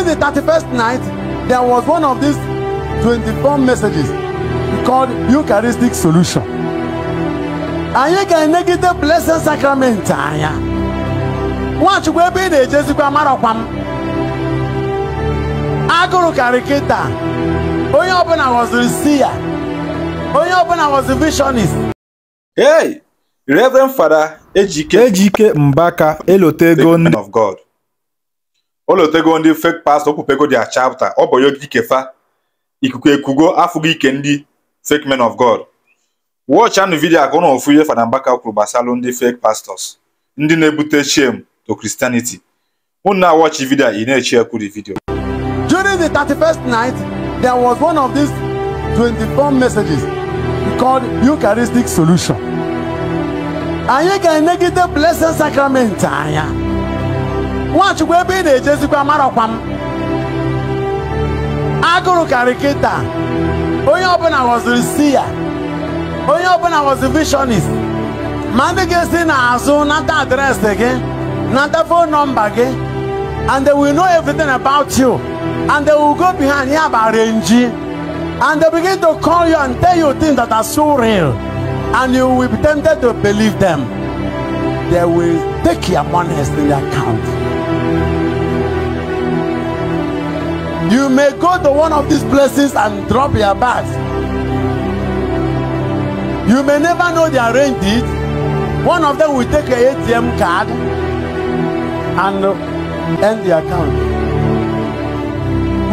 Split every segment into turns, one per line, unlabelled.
During the 31st night, there was one of these 24 messages called Eucharistic Solution. and Anyị ga-enegide Blessed Sacrament be anya. Nwachukwu ebe ị na-ejezikwa amarakwa m. Agụrụ karịkịta. Onye ọbụla ghọziri si ya. I was ghọzi visionist. Hey! Reverend Fada Ejike Ejike Mbaka elota of God. olotego ndị fake pastọ okwupego dia chapta ọ bụ kefa ikuku ekugo afụgo ike ndị fake men of god watch anụ vidio ka ụnụ ofu ihe Fada Mbaka kwuru ndị fake pastors ndị na-ebute shame to Christianity ụnụ na-awọchi vidio ị na-echi ekwuri vidio during the 31st night there was one of these 24 messages called Eucharistic Solution anyị ga-enegide blessed sacrament anya nwachukwu ebe ị na-ejezikwa marọkwa m agụrụ karịkịta onye ọbụla ghọziri si ya onye ọbụla ghọzi vishọnist ma ndị ga-esi n'azụ nata adreesị gị nata fon nọmba gị and they will know everything about you and they will go behind ya bụ renji and they begin to call you and tell you things that are so real and you will be tempted to believe them they will take your money in their account. You may go to one of these places and drop your bags. You may never know they arranged it. One of them will take an ATM card and uh, end the account.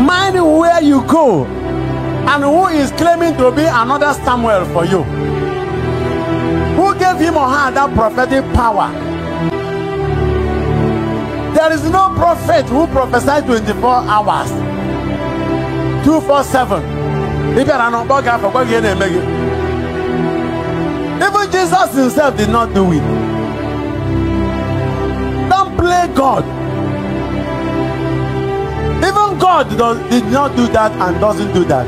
Mind where you go and who is claiming to be another Samuel for you. Who gave him or her that prophetic power? There is no prophet who prophesies 24 hours. Two, four, 247. Even Jesus himself did not do it. Don't play God. Even God does, did not do that and doesn't do that.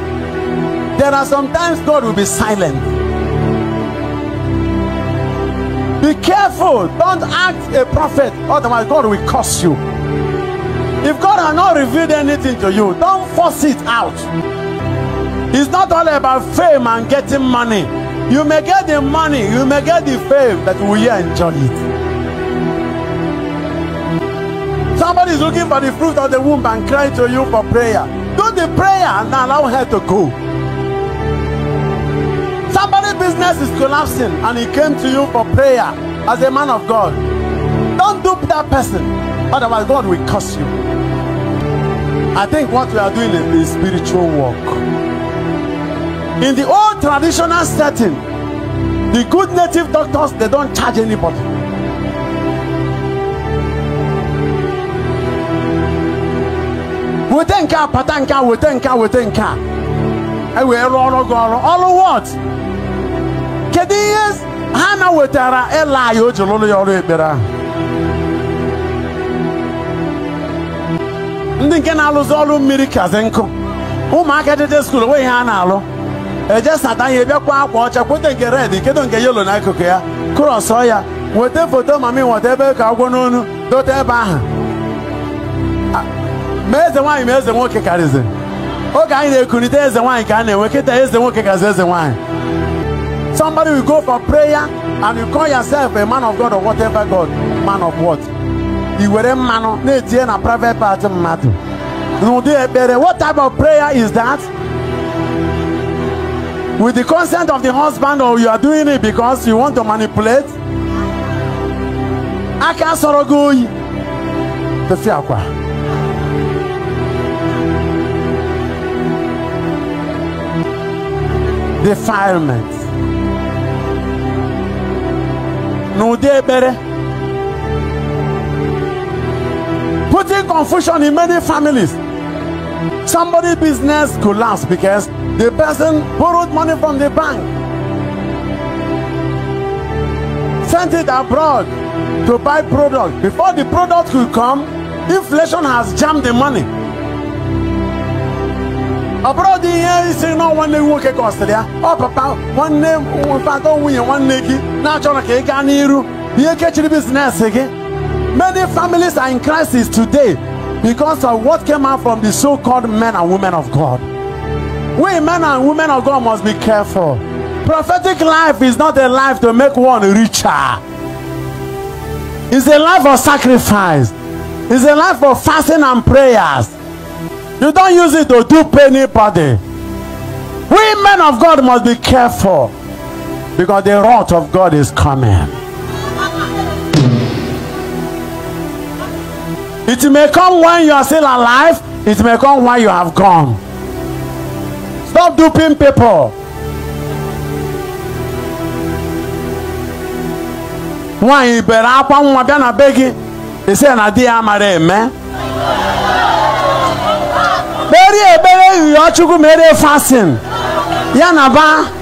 There are sometimes God will be silent. Be careful. Don't act a prophet, otherwise, God will curse you. If God has not revealed anything to you, don't force it out. It's not all about fame and getting money. You may get the money, you may get the fame, but will you enjoy it? Somebody is looking for the fruit of the womb and crying to you for prayer. Do the prayer and allow her to go. Somebody's business is collapsing and he came to you for prayer as a man of God. Help that person. Otherwise, God will curse you. I think what we are doing is spiritual work. In the old traditional setting, the good native doctors they don't charge anybody. weta nke a pata nke a weta nke a weta nke a ewee rụọ ọrụ gị ọrụ ọrụ wọt kedu ihe ha na wetara ịla anyị o ji ndị nke na-alụzi ọrụ mmiri kazi nkụ ụmụaka jeje skuul onwe ihe a na-alụ eje sata ihe bịakwa akwa ọcha kweta nke red kedo nke yelo n'akụkụ ya kụrọsọ ya weta foto mami nweta ebe ka agwọ n'onu dote ebe ahụ ma eze nwaanyị ma eze nwoke karịzị oge anyị na-ekunite eze nwaanyị ka a na-enwe kịta eze nwoke kazi eze nwaanyị somebody will go for prayer and you call yourself a man of God or whatever God man of what were mmanụ na-etinye na private part mmadụ n'ụdị ekpere what type of prayer is that with the consent of the husband or you are doing it because you want to manipulate aka sọrọ gị oyi tụfịa akwa defilement n'ụdị ekpere causing confusion in many families. Somebody's business collapsed because the person borrowed money from the bank, sent it abroad to buy product. Before the product could come, inflation has jammed the money. abroad in here, ihe isi na nwanne nwoke kọsịrị ya oh papa one nwanne mfatọ nwunye nwanne gị na-achọrọ ka ị you? You catch the business again? Many families are in crisis today because of what came out from the so called men and women of God. We men and women of God must be careful. Prophetic life is not a life to make one richer, it's a life of sacrifice, it's a life of fasting and prayers. You don't use it to dupe anybody. We men of God must be careful because the wrath of God is coming. It may come when you are still alive. It may come when you have gone. Stop duping people. Nwaanyị bere akwa nwa bịa na be gị ise na di ya mara eme. Kpere ekpere yụọ Chukwu mere fasting ya na ba.